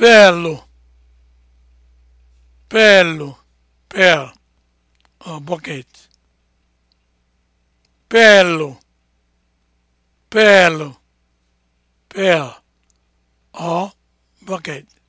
peelụ peelụ peel or oh, bucket peelụ peelụ peel or oh, bucket